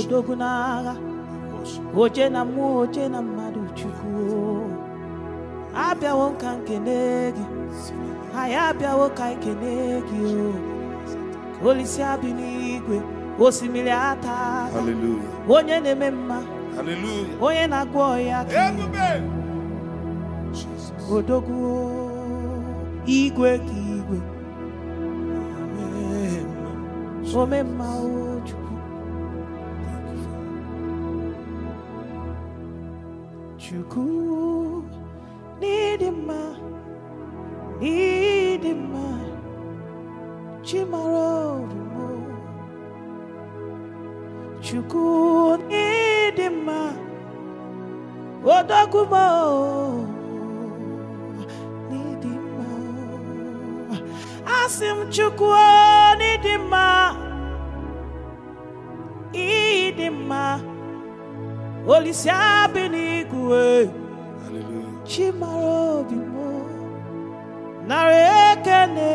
odogwu n'agha oje na mmụọ oje na mmadụ chukwu abịawo nke nkene gị anyị abịawo ka nkene gị o olisi abị n'igwe osimiri ata onye na-eme mma onye na-agwọ ọya odoguo igwe ka igwe mma o chukwu n'ịdị mma n'ịdị mma chimara orumo chukwu n'ịdị mma odogwuma n'ịdị mma asị m chukwu n'ịdị mma ịdị mma olise abịa iwe chi obi m narị ekene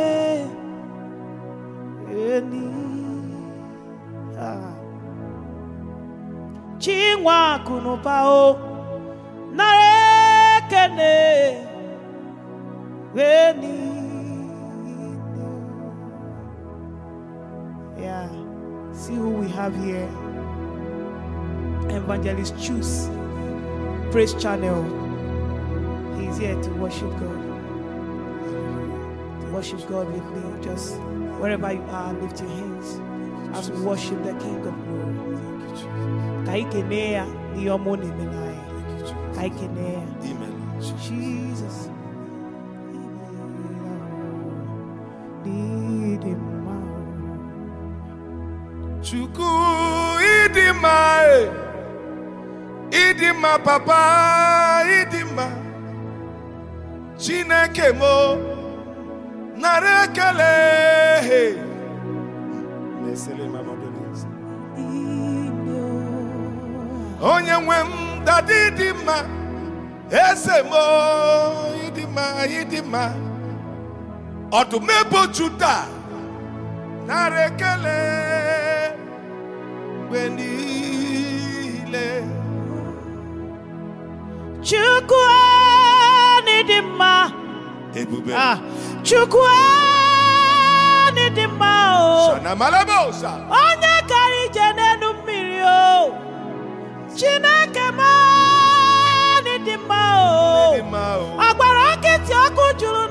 eni chi nwa akụ o narị ekene eni ya see who we have here evangelist choose Praise Channel. He's here to worship God. To worship God with me. Just wherever you are, lift your hands as we worship the King of Glory. Ka anyị kenee ya n'ihe ọma ọ Ka anyị kenee ya. Jesus. ma papa ịdị mma chineke mo nara ekele onye nwe m dada ịdị mma eze m ịdị mma ịdị mma ọdụm juda nara ekele mgbe niile Chukwu dị mma ebube ah, Chukwu mma o onye gara ije n'elu mmiri o Chineke dị mma o agbara nkịtị ọkụ juru.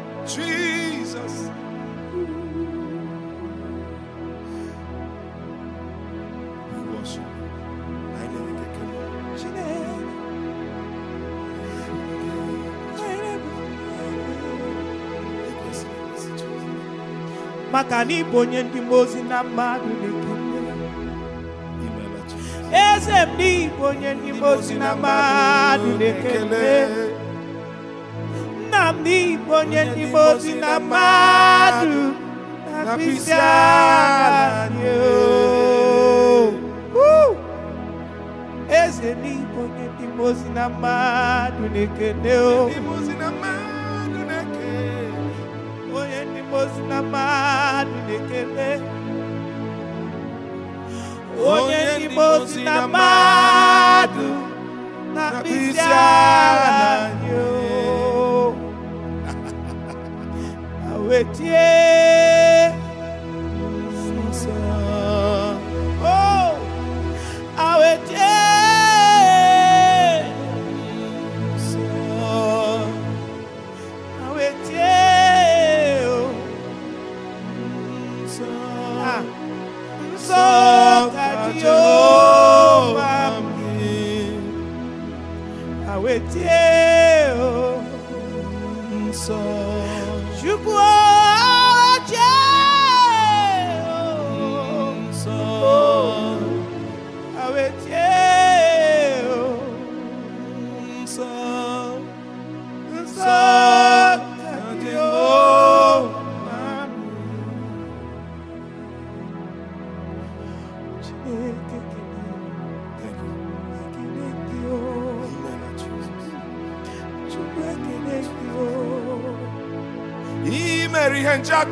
Jesus. na ịbụ onye ndị mmụọ ozi na mmadụ na Eze m na ịbụ onye ndị mmụọ ozi na mmadụ na onye n'ime ozi na mmadụ na mkpịsị agha oh. eze oh. onye na mmadụ o onye na mmadụ onye na mmadụ na oh. wetie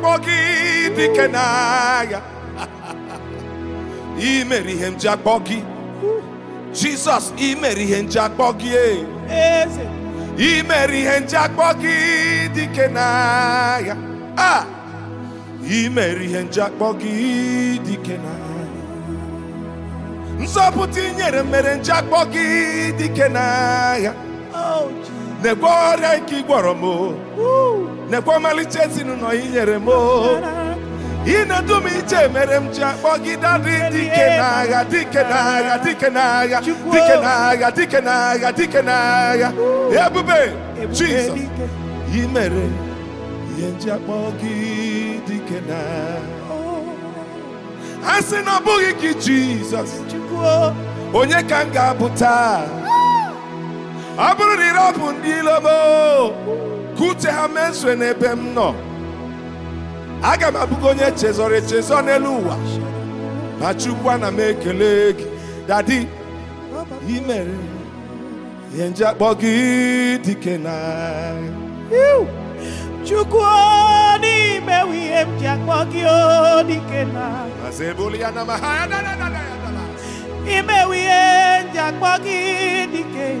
akpọ gị dike n'agha ị ihe nji akpọ gị Jizọs ị mere ihe nji akpọ gị eze ị mere ihe nji akpọ gị dike n'agha a ah! ị mere ihe nji akpọ gị dike n'agha nzọpụta ị mere nji akpọ gị dike n'agha oh, na-egwe ọrịa nke ị gwọrọ m nekwa ọmalịcha ezinụlọ ya inyere m ị na-edu m iche mere m ji akpọ gị dadị dike n'agha dike n'agha dike n'agha dike n'agha dike n'agha dike n'agha ebube Jizọs ị mere ihe nji akpọ gị dike n'agha a sị na ọ bụghị gị Jizọs onye ka m ga-abụ taa ọ bụrụ na ị rapụ ndị ilo ka uche ha mesue n'ebe m nọ aga m abụgo onye chezọrọ echezọ n'elu ụwa ma Chukwu ana m ekele gị dadi i ihe nje akpọ gị dike na Chukwu n'imewe ihe m ji akpọ gị dike na imewe ihe m ji akpọ gị dike na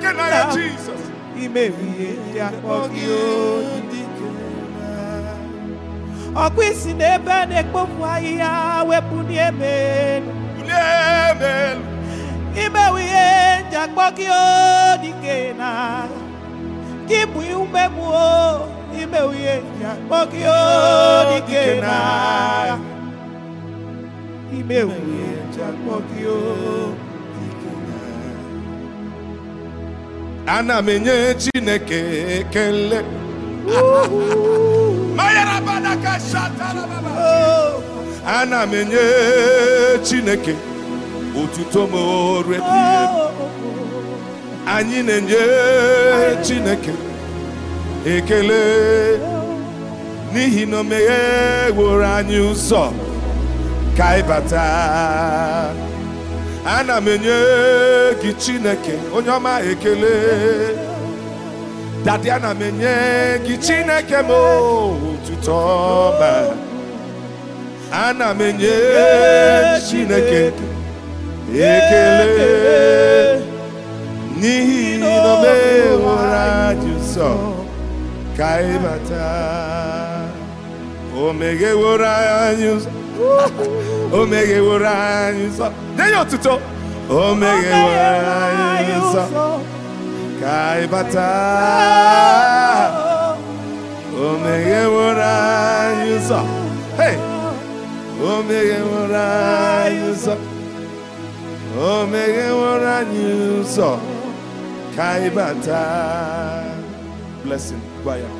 dike na ndị ọkụ isi n'ebe a na-ekpofu ahịhịa wepụ n'ime elu imewu ihe ndị akpọ gị na gị bụ umegbu imewu ihe ndị akpọ gị na imewu ihe ndị akpọ ana m enye chineke ekele oh. ana m enye chineke otuto m orie oh. anyị na-enye chineke ekele oh. n'ihi na o megheworo anyị ụzọ ka ịbata ana m enye gị chineke onye ọma ekele dadi ana m enye gị chineke m otuto ọma ana m enye chineke ekele n'ihi na ọ meworo anyị ụzọ ka ịbata o megheworo anyị ụzọ o megheworo anyị nsọ nye otuto o megheworo anyị nsọ ka anyị bata o megheworo anyị nsọ hey o megheworo anyị nsọ o megheworo anyị nsọ ka anyị bata blessing gwa ya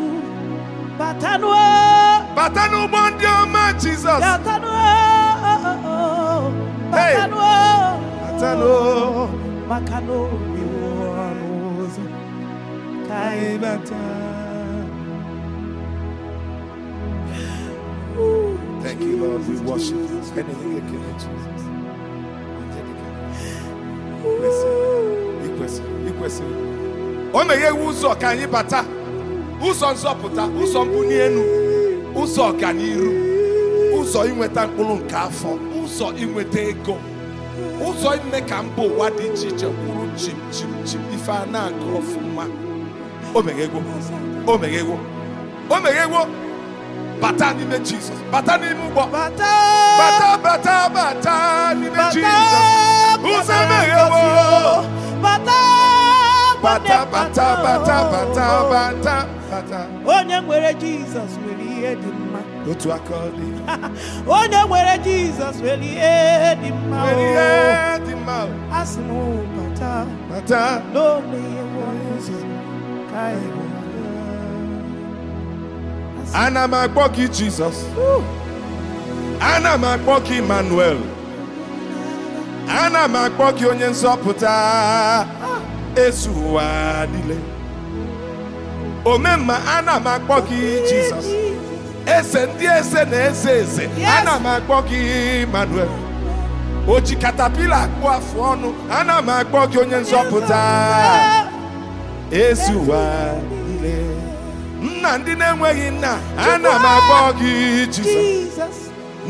bata n'ụgbọ ndị ọma Jizọs maka na obi ka anyị bata Thank you, Lord. We O ụzọ ka anyị bata. ụzọ nzọpụta ụzọ mbuli elu ụzọ ọganihu, ụzọ inweta mkpụrụ nke afọ ụzọ inweta ego ụzọ ime ka mba ụwa dị iche iche kwuru chim chim chim ife a na-agụ ọfụma o meghegwo o meghegwo o meghegwo bata n'ime jizọs bata n'ime ụgbọ bata bata bata n'ime jizọs ụzọ emeghewo bata bata bata bata bata bata onye nwere jizọs nwere ihe dị mma otu aka ọ dị onye nwere jizọs nwere ihe oh, dị mma a sị m oh, bata bata n'ome ihe ụzọ ka ana m akpọ gị jizọs ana m akpọ gị emmanuel ana m akpọ gị onye nzọpụta ah. ezu ụwa niile omemma ana m akpọ gị jizọs eze ndị eze na eze eze ana m akpọ gị manuel oji katapila akpụ afọ ọnụ ana m akpọ gị onye nzọpụta ezi ụwa nne nna ndị na-enweghị nna ana m akpọ gị jizọs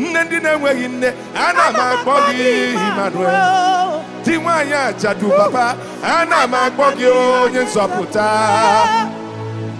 nne ndị na-enweghị nne ana m akpọ gị Emmanuel di nwaanyị ajadu papa na m akpọ gị onye nzọpụta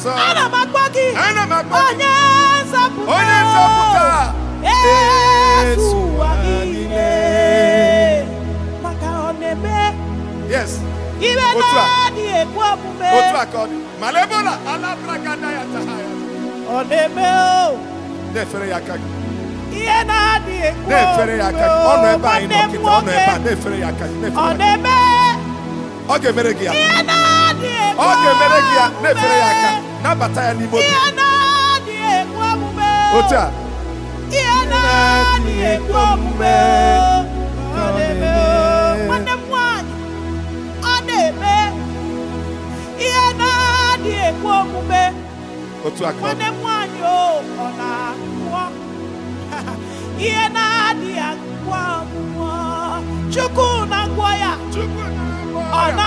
nzọpụta ana m akpọ gị ana m akpọ onye nzọpụta onye nzọpụta ezu ụwa niile maka ọ na-eme yes ibe na-adịghị omume otu a ka ọ dị mana ebe ọ na-alabara ada ya ọ na-eme o oh. na-efere ya aka gị ihe na-adịghị ekwe omume o oh. nwanne m ọ na-eme ọ ga-emere gị ya ọ ga-emere gị ya na-efere ya aka nabata ya n'ime a nwanne na-eme ihe na-adịghị ekwe omume nwanne m nwanyị ọ ihe na-adịghị akpụọ ọgwụgwọ chukwu na ya ọ na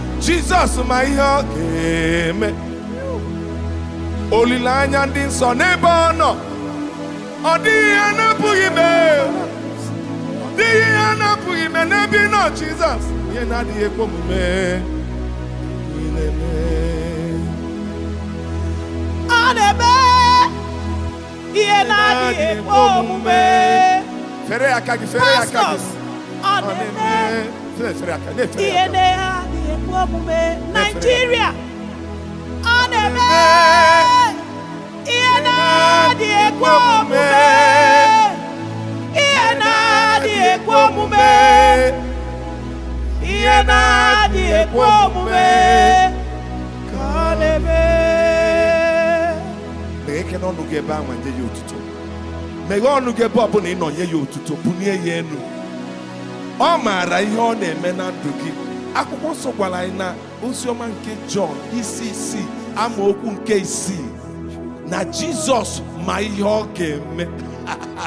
jesus ma ihe ọ ga-eme olileanya ndị nsọ n'ebe ọ nọ ọ dịghị ihe na-apụghị ime dịghị ihe na-apụghị ime n'ebe ị nọ jizọs ihe na-adịghị ekwe omume ọ na-eme ihe na-adịghị ekwe omume fere aka gị fere aka gị ọ na-eme ihe na-eme ekwe omume na-eme ihe na-adị omume ihe na-adị na ọnụ gị ebe ahụ ya otuto ọ bụla ị nọ nye ya otuto bulie ya elu ọ maara ihe ọ na-eme na ndụ gị akwụkwọ nsọ gwara anyị na oziọma nke jọn isi isi ama okwu nke isii na jizọs ma ihe ọ ga-eme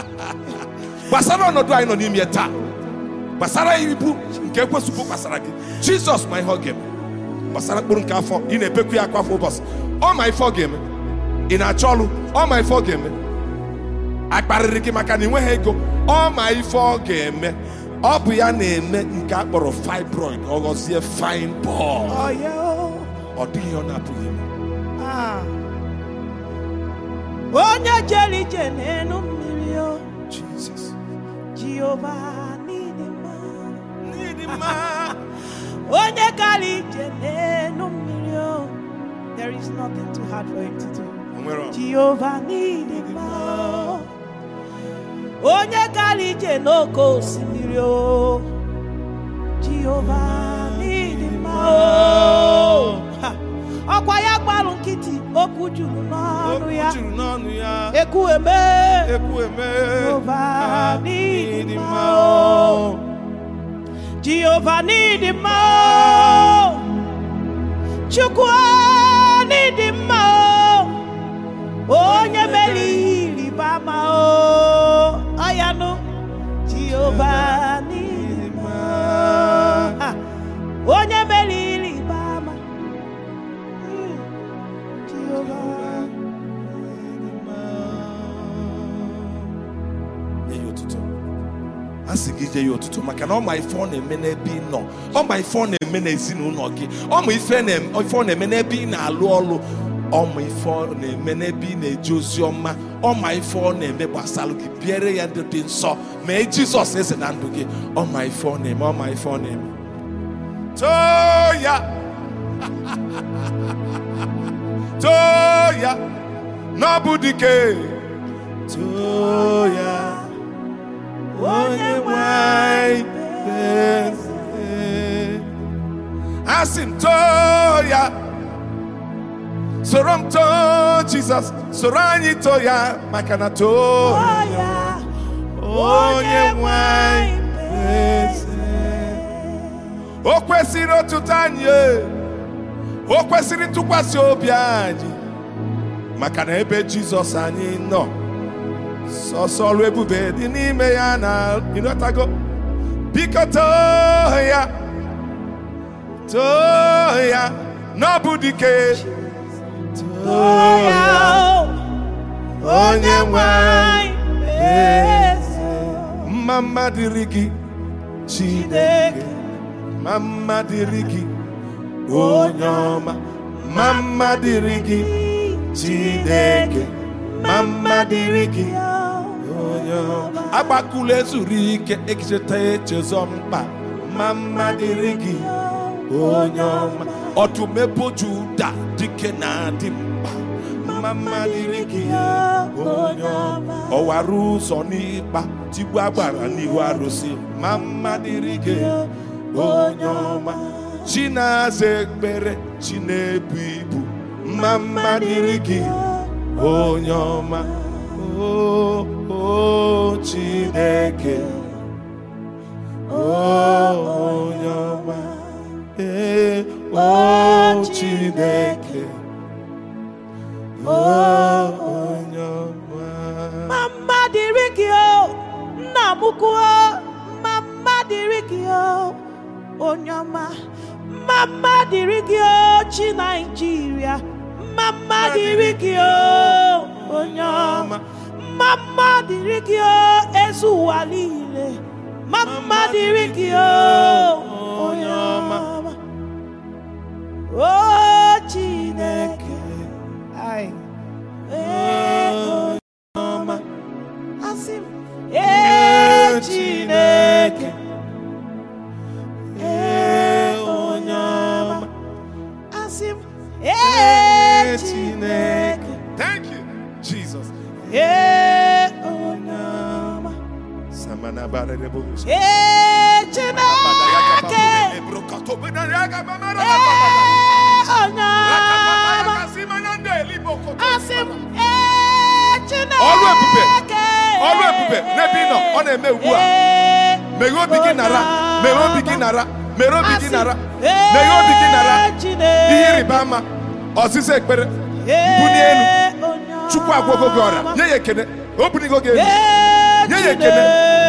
gbasara ọnọdụ anyị nọ n'ime taa gbasara ibu nke ekwesịbụ gbasara gị jizọs ma ihe ọ ga-eme gbasara mkpụrụ nke afọ ị na-ebekwu ya akwa afọ ụbọchị ọ ma ife ọ ga-eme ị na-achọ ọrụ ọ ma ife ọ ga-eme akparịrị gị maka na ị nweghị ego ọ ma ife ọ ga-eme ọ bụ ya na-eme nke a kpọrọ fibroid ọ ghọzie fine ball ọ dịghị ọ na-apụghị ime ah. onye jere ije n'elu mmiri o Jesus Jehova n'ịdị mma n'ịdị mma onye gara ije n'elu mmiri o there is nothing too hard for him to do Jehova n'ịdị mma onye gara ije n'oke osimiri Giulio, Giovanni Dimao. Ọkwa ya gbalụ nkịtị okwu juru n'ọnụ ya. Ekwu eme. Ekwu eme. Giovanni Chukwu anyị mma Onye mere ihe o. nye ya otuto maka na ọ ma ife ọ na-eme n'ebe ị nọ ọ ma ife ọ na-eme n'ezinụlọ gị ọ ma ife ọ na-eme n'ebe ị na-alụ ọlụ ọ ma ife ọ na-eme n'ebe ị na-eji ozi ọma ọ ma ife ọ na-eme gbasara gị biere ya ndị dị nsọ mee jizọs eze na ndụ gị ọ ma ife ọ na-eme ọ ma ife ọ na-eme too ya too ya na dike too ya onye nwe anyị eze asị m too ya soro m too Jizọs soro anyị too ya maka na too ya onye nwe anyị eze o kwesịrị ọtụtụ anyị e. o kwesịrị ntụkwasị obi anyị maka na ebe Jizọs anyị nọ sọsọ ọrụ ebube dị n'ime ya na ịnọtago biko too ya too ya n'ọbụ dike too ya onye nwanyị eze mma dịrị gị Chineke mma mma onye ọma mma mma dịrị anyị agbakula ezuru ike ekecheta echezọ mkpa ma mma dịrị gị onye ọma ọtụmepo juda dike na-adị mkpa ma mma dịrị gị onye ọma ọwara ụzọ n'ịkpa tigbu agbara n'ihu arụsị ma mma dịrị gị onye ọma chi na-aza ekpere chi na-ebu ibu ma mma dịrị gị onye ọma o o Chineke o oh, onye ọma ee eh, o oh, Chineke o oh, onye ọma ma mma dịrị nna m kwuo ma mma dịrị gị o onye ọma ma mma dịrị gị o chi Naijiria ma mma dịrị gị onye ọma mma dịrị gị o ụwa niile mma dịrị gị o onye ọma o Chineke Ee Chineke asị m na-eme meghe obi gị nara elu Chukwu gị ọrịa nye ya ekele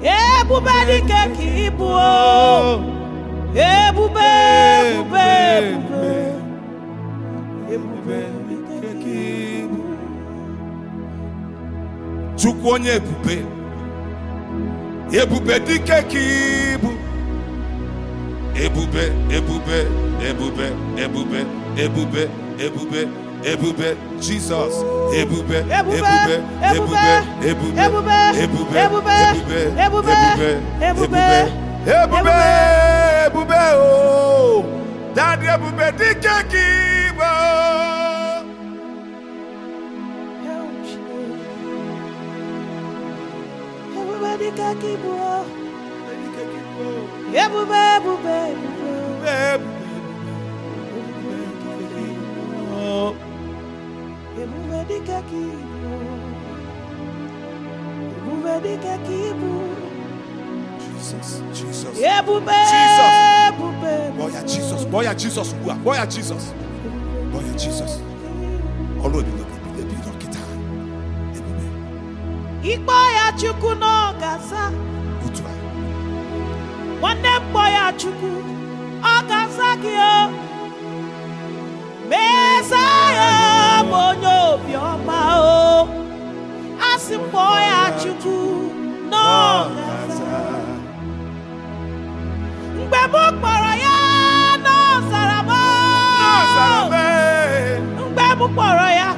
ebube dị ka ịbụ ebube ebube ebube chukwu onye ebube ebube dị ka ịbụ ebube ebube ebube ebube ebube ebube ebube jizọs ebube ebube ebube ebube ebube ebube ebube ebube ebube ebube ebube o ebube, ebube dike ebube, ebube, ebube ebube, ebube, ebube, ebube ebube ebube ebube ebube dịka ka ibu ebube dịka ka jisọs, ebube ebube bọya jisọs bọya Jizọs ugbu a bọya Jizọs bọya Jizọs ọrụ ebube ebi dọkịta ebube ikpọ ya Chukwu n'oge asaa otu a nwanne m ya Chukwu ọ ga asa gị o kpọ ya chukwu n'ọzara mgbe m kpọrọ ya n'ọzara m mgbe m kpọrọ ya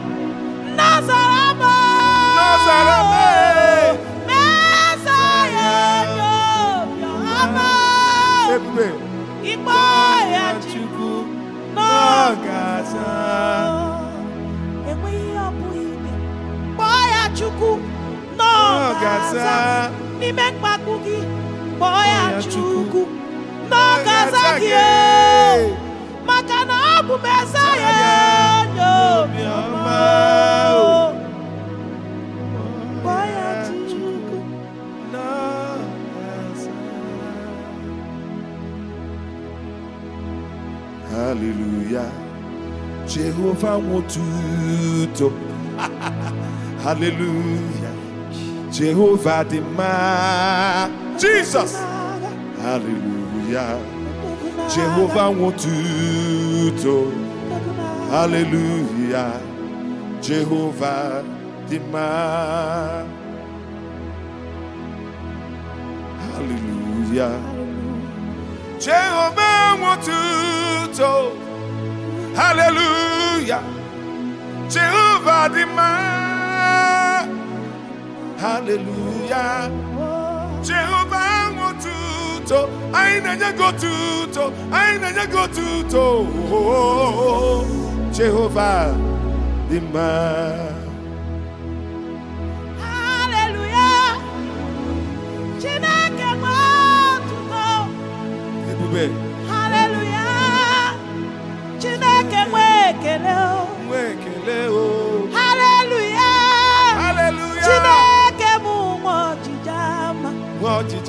n'ime mkpagbu gị kpọọ ya Chukwu n'oge gị maka na ọ bụ meza ya onye Hallelujah Jehovah Hallelujah Jehovah dị mma Jesus haleluya Jehova nwotuto haleluya Jehova dị mma haleluya Jehova nwotuto haleluya Jehova dị mma haleluya jehova ahụ otuto anyị na-enye gị otuto anyị na-enye gị otuto jehova dị mma haleluya chineke gba otuto ebube haleluya chineke nwe ekele o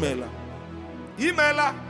imeela